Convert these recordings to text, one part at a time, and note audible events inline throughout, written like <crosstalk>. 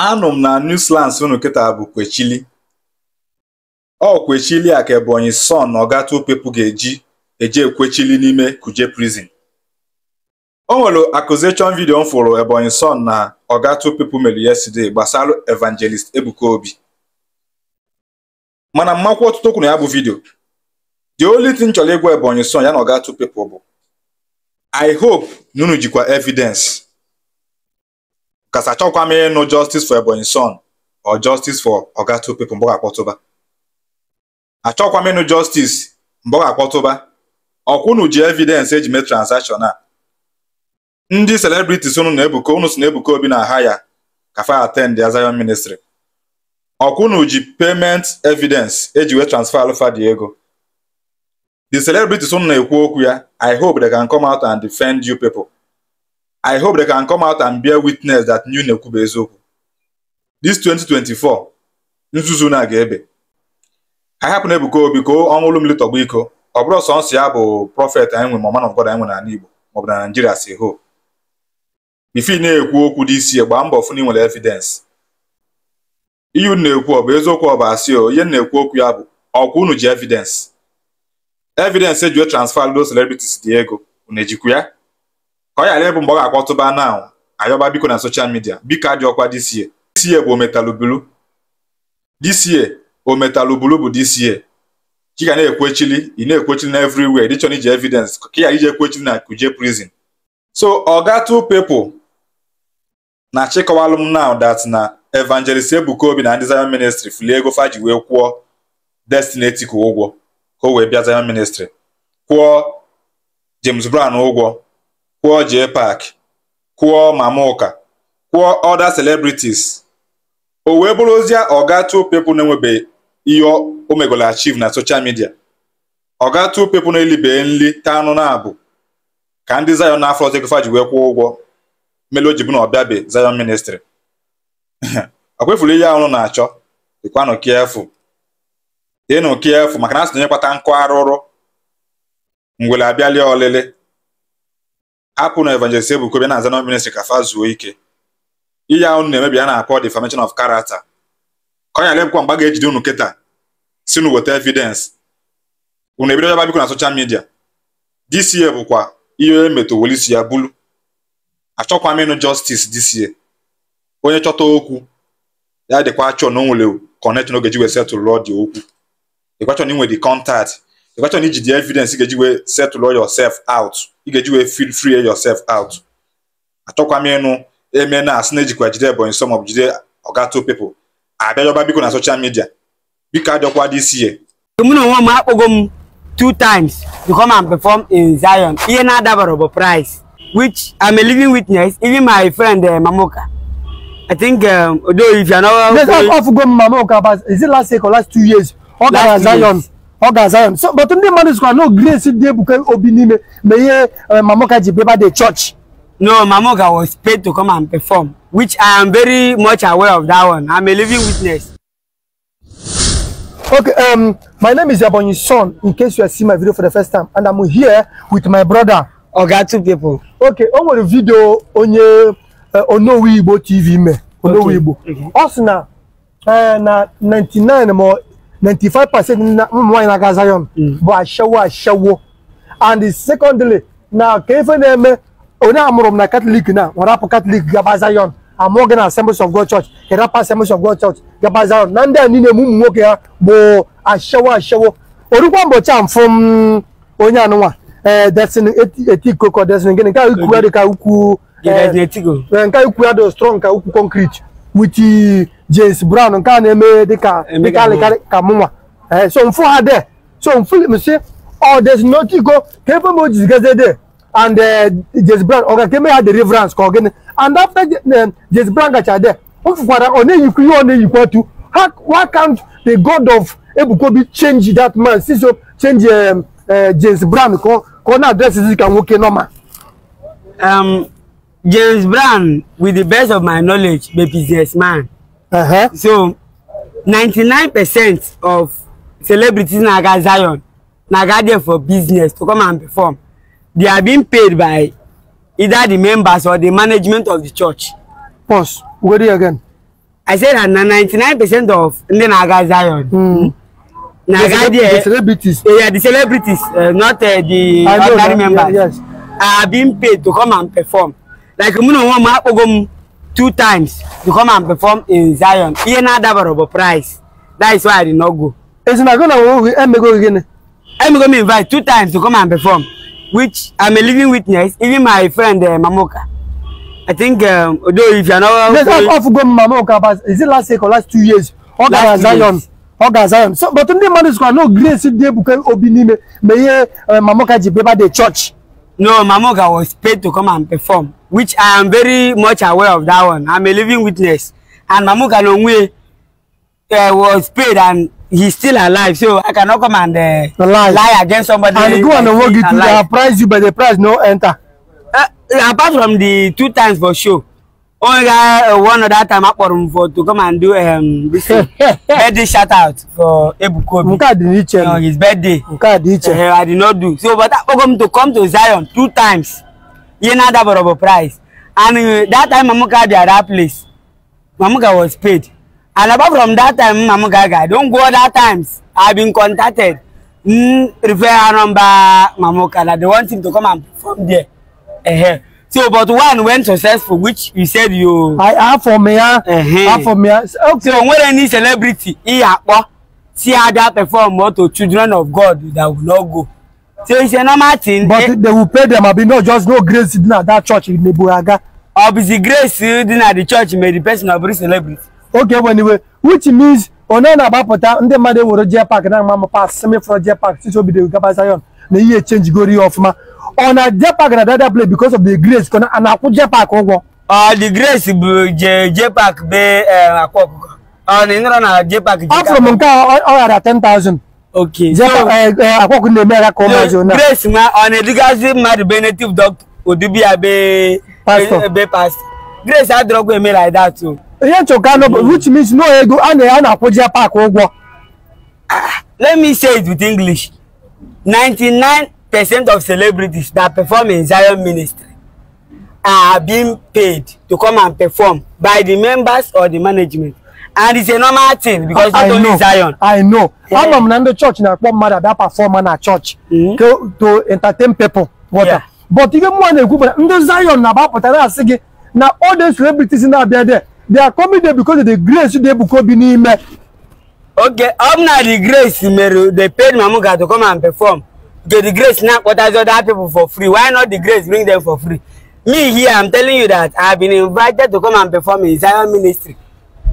anụ m na Newslands unu kịta bụ kwechili ọ kwechili a ka Ebonyi Son na Oga ga-eji eje ekwechili n'ime Kuje prison o nwere accusation video m fụrụ Ebonyi Son na Oga Two People yesterday gbasara Evangelist Ebuka Obi mana mmakwa ọtụtụ kwuru ya bụ video the only thing chọrọ ịgwa Ebonyi Son ya na Oga bụ I hope na jikwa evidence kasị achọkwa m ịnụ justice for Ebonyi Son or justice for Oga Two People mgbọga akpọtụba achọkwa m ịnụ justice mgbọga akpọtụba ọkwụnụ ji evidence eji mee transaction a ndị celebrities ụnụ na-ebuko unu si na Obi na aha ya kafa attend ya Zion Ministry ọkwụnụ ji payment evidence eji wee transfer alụfa dị ego the celebrities unu na-ekwu okwu ya I hope they can come out and defend you people I hope they can come out and bear witness that Nnewi bụ eziokwu. This 2024 nzuzu na ga-ebe anyị hapụ na Ebuka Obi ka ọnwụlụ mmiri tọgbu iko ọ bụrụ nsọ ya bụ prọfet anyị nwe ma man God anyị nwe n'ala Igbo maọbụ na Naijiria si ho ifi na-ekwu okwu dị isi gbaa mbọ fụ na ịnwere nwere evidence ihe unu na-ekwu ọ bụ eziokwu ọ bụ asị o ihe na-ekwu okwu ya bụ ọkwụ unu ji evidence evidence eji transfer those celebrities dị ego unu ejikwu ya ka ọ ghara ịbụ mgbe ọ ga-akpọtụba na ayọba biko na soshal midia biko adị ọkwa DCA DCA bụ ometalubulu DCA ometalubulu bụ DCA ka ga na-ekwechili ị na-ekwechili na everywhere dịchọ na iji evidence ka ị ghara ekwechili na kuje prison so oga two people na chịkọwalụ m dat na evangelist ebukobi na ndị Zion ministry fili ego faji wee kwụọ Destiny Etiko ụgwọ ka o wee bịa Zion ministry kwụọ James Brown ụgwọ kwụọ Jpac, kwụọ Mamụka, kwụọ other celebrities o wee bụrụzie oga two pepụ na-enwebeghị ihe o megolo achiv na social midia oga two pepụ na-elibe nri taa anụ na abụ ka ndị Zion n'afọ ọzọ Ekefa ji wee kwụọ ụgwọ melo ji bụ na ọbịabe Zion ministry ọ <laughs> kwefuru ihe ahụ na-achọ dịkwanụ kiefu dịnụ kiefu maka na asị onye nkụ arụrụ ngwele abịalie ọlịlị hapụ na evangelist Ebuka Obi na-aza na ministry ka fa zuo ike ihe ahụ na-emebi a na-akpọ defamation of character ka ọnya lebụkwa mgba ga-ejide unu kịta si nu weta evidence unu ebido yaba biko na soshal midia this bụkwa ihe e isi ya bulu achọkwa m ịnụ justice this onye chọta okwu ya dịkwa achọ na o nwere connection oge ji wee setụlụ ọ dị okwu ịkwachọ na inwe dị contact the question iji the evidence You ga-eji wee settle all yourself out You ga-eji feel free yourself out I talk achọkwa m ịnụ eme na asị na ejikwa jide Ebonyi some of jide oga two people abịajọba biko na social media biko ajọkwa this year mụ na onwe m two times to come and perform in Zion ihe na-adabara bụ price which I'm a living witness even my friend uh, Mamoka I think um, although eh, if you're not... Let's off go Mamoka but is it last year or last two years? Ọ gara Zion. Years ọ ga-aza ya so but ndị mmadụ sikwa na grace dị ebuka obi n'ime ma ihe eh, mamoka ji beba the church no mamoka was paid to come and perform which i am very much aware of that one i'm a living witness okay um my name is Ebonyi Son in case you are seeing my video for the first time and i'm here with my brother oga two people okay o nwere video onye eh, onowu igbo tv me onowu igbo mm-hmm. ọ sị na eh, na 99 ma ninety five percent mma nwaanyị na-aga Zion hmm. bụ ashewo ashewo and secondly na ka ife na-eme onye amụrụ m na katọlik na nwere apụ katọlik gaba Zion amụọ gị na Assemblies of God Church kerapa Assemblies of God Church gaba Zion na ndị a niile m ụmụ nwoke ya bụ ashewo ashewo orukwa ụbọchị a mfụ m onye anụnwa ee eh, destiny etiko ka destiny gịnị nke ukwu ya dị ka ukwu eh, eh, nke ukwu ya dị strong ka ukwu concrete with James Brown nke a na-eme dịka dịka alịkarị ka mụnwa ee eh, so mfụ ha de so mfụ msi ọ oh, des notigo ka ebe m ojizi gaze de and eh, James Brown ọ ga eme ha deliverance ka ọ gịnị and after eh, James Brown gacha de m fụkwara ọ na-eyikwa ihe ọ na-eyikwa tu why can't the god of Ebukobi change that man si so change James Brown ka ọ na-adresizi ka nwoke nọma um, James Brown with the best of my knowledge be businessman Uh -huh. So 99% of celebrities naga Zion naga there for business to come and perform. They are being paid by either the members or the management of the church. Pause. Go there again. I said that 99% of ndị naga Zion. Mm. Naga there. The celebrities. Uh, yeah, the celebrities, uh, not uh, the ordinary members. Yeah, yes. Are being paid to come and perform. Like, you know, I'm two times to come and perform in Zion. Ihe na-adabara bụ price. That is why I did not go. Ezinago na oge emego gịnị? Emego me invite two times to come and perform which I'm a living witness even my friend uh, Mamoka. I think um, although if you're not... Yes, not I've gone Mamoka but is it last year or last two years? Ọ gara Zion. Ọ gara Zion. So but ndị mmadụ sịkwa No grace dị ebuka obi n'ime ma ihe eh, Mamoka ji beba the church. No, Mamoka was paid to come and perform which I am very much aware of that one. I'm a living witness. And Mamuka Nongwe uh, eh, was paid and he's still alive. So I cannot come and uh, lie. against somebody. And go and work it to the price you, but the price no enter. Uh, apart from the two times for sure. Only guy, uh, one other time I for him for to come and do um this <laughs> birthday shout out for Ebukobi. Mukadi Niche. No, his birthday. Mukadi Niche. Uh, I did not do. So but I come to come to Zion two times ye na that borobo price and uh, that time mamuka be at that place mamuka was paid and apart from that time mamuka guy don't go other times i been contacted mm, refer number mamuka na they want him to come and perform there uh -huh. so but one went successful which you said you i have for me uh ah. -huh. for me ah. okay. so when any celebrity he akpo see how that perform or to children of god that will not go tí ó ń ṣe normal thing. but eh? they will pay them abi no just no grace at that church in neburaga. obisi grace at the church may the person of celebrity. okay well, anyway which means onye na-agbapụta ndị mmadụ ewere jee pak na mma mpa semifro jee pak titi obido gaba zion na ihe chenji gori ya ọfụma ọ na jee pak na dada play because of the grace kọ na akwụ jee pak ụgwọ ọ the grace bụ jee jee pak bee eh, akwa ọkụkọ ọ na ịnọrọ na jee pak ọ fụrụ m nke ọ ghara 10000 Okay. Je eh, eh, eh, which means no ego ana ya na akwuje park ụgwọ. Ah, let me say it with English. 99% of celebrities that perform in Zion ministry are being paid to come and perform by the members or the management and it's a normal thing because I, not I know, Zion. I know. Yeah. I'm from the church na akpọ mmadụ ada perform na church mm -hmm. to, to entertain people water. Yeah. But ihe mụ na-ekwu bụ na ndị Zion na-agbapụtara asị gị na all the celebrities na-abịa there they are coming there because of the grace dị Ebuka Obi n'ime. Okay, ọ bụ na the grace mere they paid Mamuga to come and perform. Okay, the grace na-akpọtazi other people for free. Why not the grace bring them for free? Me here, I'm telling you that I have been invited to come and perform in Zion ministry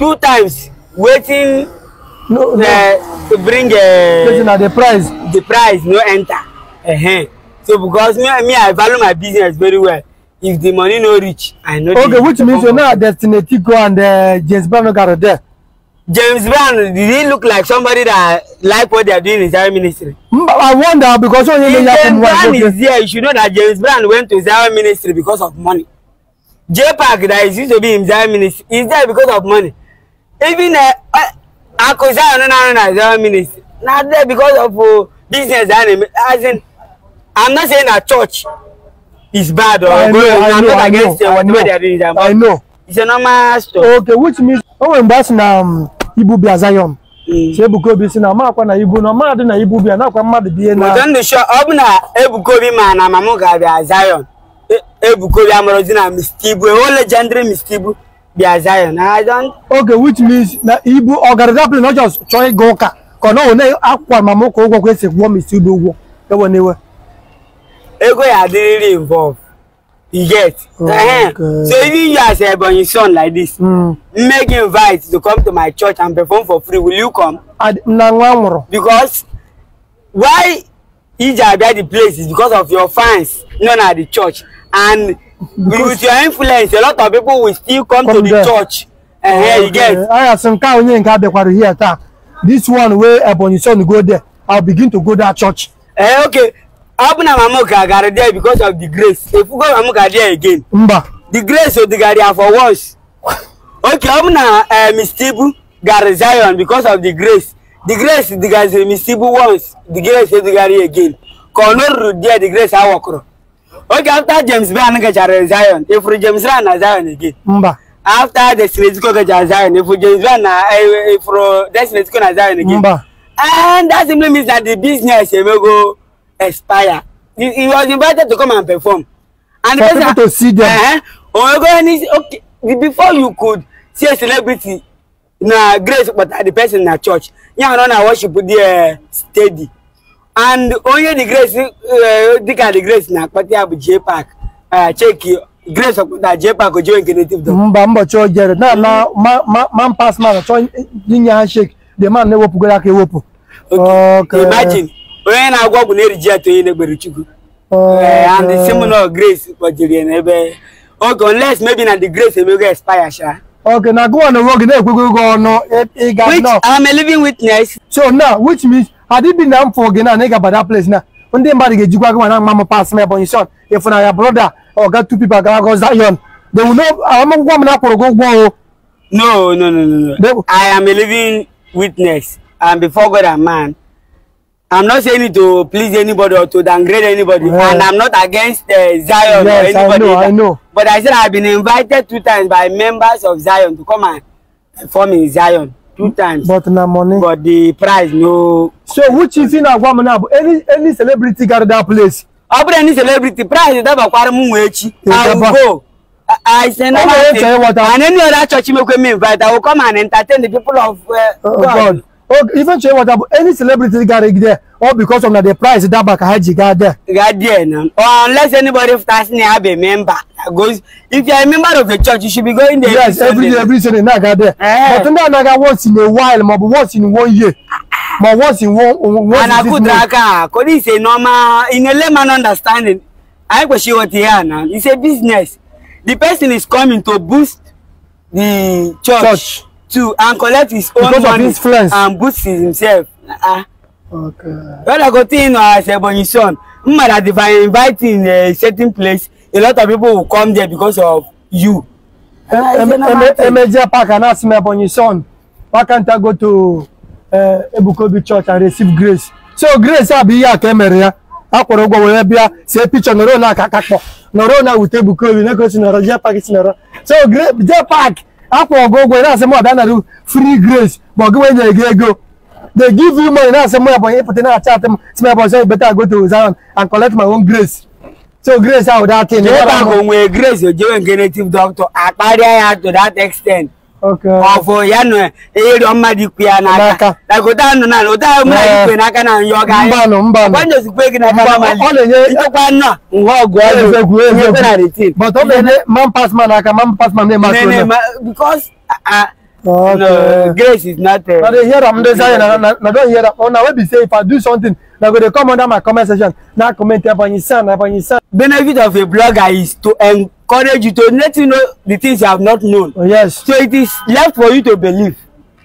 two times waiting, no, no. Uh, bring uh, eh, wetin na the price the price no enter uh -huh. so because me, me i value my business very well if the money no reach i no dey okay which means you're a destiny go and uh, james brown no garo there James Brown, did he look like somebody that like what they are doing in Zion ministry? I wonder because when you James Brown okay. is there. you should know that James Brown went to Zion ministry because of money. J Park that is used to be in Zion ministry is there because of money. even uh, uh, akụzi ahụ na-arụ na zero minutes not there because of uh, business a na-eme I'm not saying that church is bad or I good know, I'm know, not against know, whatever they are doing I know. it's a normal story. okay which means oh nwere mgbe a na um, ibu bịa Zion mm. si si na ma na ibu na mmadụ na ibu bịa nakwa mmadụ bie na ụtọ ndụ shọ ọ bụ na Ebuka Obi ma na mama m ga-abịa Zion e, Ebuka Obi amụrụzi na Mr. Ibu ewo legendary Mr. their Zion. I don't. Okay, which means na Igbo organization oh, not just chọọ ịga ụka ka na ọ na-akwa mama ụka ụgwọ kwesị gwụọ m isi ụdị ụgwọ ewe na ewe. Ego ya adịrịrị involve. You get. Oh, okay. Uh -huh. So even you as Ebonyi son like this, mm. make invite to come to my church and perform for free. Will you come? Na nwa Because why Ije Abia the place is because of your fans, not at the church and. with your influence a lot of people will still come, come to the there. church and here you get aya sị nke onye nke abịakwara here taa this one wey Ebonyi son go there I'll begin to go that church eh okay ọ bụ na mamuka there because of the grace go mamuka there again mba the grace her for once okay ọ bụ na mistibu Zion because of the grace the grace digaziri mistibu once the grace odigari again ka ọ nọruru there the grace awọkụrụ Okay, after James Brown gachara Zion, If James Brown na Zion again. Mba. After Destiny Zico gachara Zion, if James Brown na ifuru Destiny na Zion again. Mba. And that simply means that the business eh, may go expire. He, he was invited to come and perform. And For the person, to see them. Uh -huh, oh, okay, before you could see a celebrity na grace but the person na church. Yeah, no, na worship the uh, steady and only the grace eh, dịka the grace na-akpata ya bụ JPAC ah, cheki grace ọkpụta JPAC ojiwe nke native dog mba mbọchị o jere na na man pass man chọọ inye ha shek the man na-ewepụgoro aka Okay. imagine onye na-agwọ ọgwụ na-eriji ya onye na-egbere chukwu eh, and the seminal grace kpọjiri ya n'ebe Okay, unless maybe na the grace emego expire sha okay now go on the road na-ekwego ọnụ ịga which I am a living witness so now which means adibi na mfo gị na na ị gaba that place na ndị mmadụ ga-ejikwa gị ma na mama pas ma ebonyi shon ịfụna e ya broda ọga tu pipa gara go zion they will know agbamakwụkwọ ah, m na akwụrụ gị ụgwọ o no no no no no i am a living witness and before god and man i'm not saying it to please anybody or to downgrade anybody yeah. and i'm not against uh, zion yes, or anybody I know, I know. but i said i've been invited two times by members of zion to come and perform in zion two times but na money but the price no so which is in agwam now any any celebrity got that place abure any celebrity price that bakwara mu echi i will go I send oh, a message. And any other church you make me invite, I will come and entertain the people of uh, oh, God. God. Oh, even check what about any celebrity got there, all because of the price that back had you got there. Got there, no. Or unless anybody starts near a member goes if you are a member of the church you should be going there yes every day every sunday na ga there eh. but na na ga once in a while mo once in one year mo once in one once in six months and this is normal in a layman understanding i question what here now it's a business the person is coming to boost the church, church. to and collect his own because money influence and boost himself uh, okay brother go think uh, as ebonyi son mmadụ divine inviting a uh, certain place a lot of people will come there because of you. Emeje Park and ask me about your son. Why can't I go to eh, Ebukobi Church and receive grace? So grace abi e ya kemere ya. Akwọrọ ụgwọ were bịa see picture nọrọ na Kakapo. No nọrọ na wute Ebukobi na gosi nọrọ Jee Park si nọrọ. So Jee Park akwọrọ ụgwọ ụgwọ na-asị m ọbịa nara free grace But ọ gị wee nyere They give you money na-asị m ọbịa ịpụta na-acha atị m si m ọbịa ọzọ better I go to Zion and collect my own grace. So grace how that thing. They back on where grace you join native doctor. Akpari ya to that extent. Okay. Ọ̀fọ̀ ya nọ eri ọma dị kwe ya n'aka. Like ụda nọ na ụda ọma dị kwe n'aka na nyọ ga. Mbanụ mbanụ. Kwanye ozugbo gị na mba ma. Ọ na-enye ịtọkwa nna. Nwa ọgụ ọgụ egwu egwu egwu. But ọ na-enye man pass man aka man pass man na-eme asọ. Because uh, okay. no, grace is not. Uh, na dey hear am dey say na na don hear am. Una wey be say if I do something Now go to come under my comment section. Now comment upon San, son, upon your son. Benefit of a blogger is to encourage you to let you know the things you have not known. Oh, yes. So it is left for you to believe.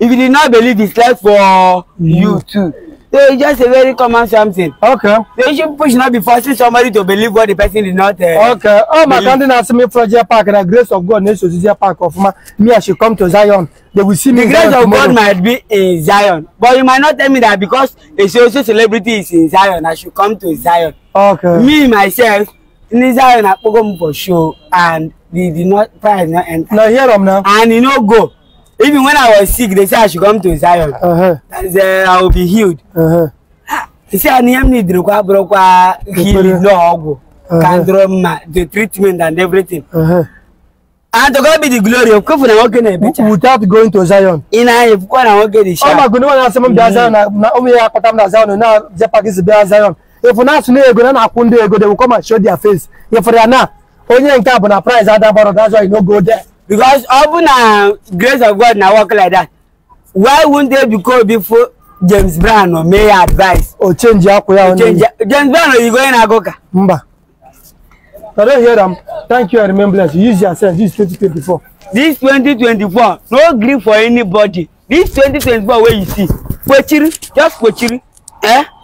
If you did not believe, it's left for you, mm. you too. So it's just a very common something. Okay. So you should push not be forcing somebody to believe what the person did not. Uh, okay. Oh, my country has me project park and the grace of God needs to Zion park of ma. Me, I should come to Zion. They will see me. The grace Zion of tomorrow. God might be in Zion, but you might not tell me that because a social celebrity is in Zion, I should come to Zion. Okay. Me myself in Zion, I go for show and they did not prize not enter. Now here, them now. And you know go. Even when I was sick, they said I should come to Zion. Uh-huh. Uh -huh. And then I will be healed. Uh -huh. Ah, they said I need to go to healing, no ogu, candroma, uh-huh. the treatment and everything. Uh -huh. And to God be the glory of Kofu na woke ebicha. Without going to Zion. in Ina if kwa na woke the shop. Oh my god, no one has asemam mm-hmm. da Zion na na omi ya kota na Zion na je package be Zion. If na sunu ego na akwunde ego they will come and show their face. If they are na onye nke abụ na price ada baro that's why you no go there because ọ bụ na grace of god na work like that why won't they be called before james brown or may advice. o change Change? ya james brown oyibo you na-agụ ka. mba i don hear am thank you and remembrance use your sense this twenty twenty four. this twenty twenty four no gree for anybody this twenty twenty four wey you see kpochiri just kpochiri. Eh?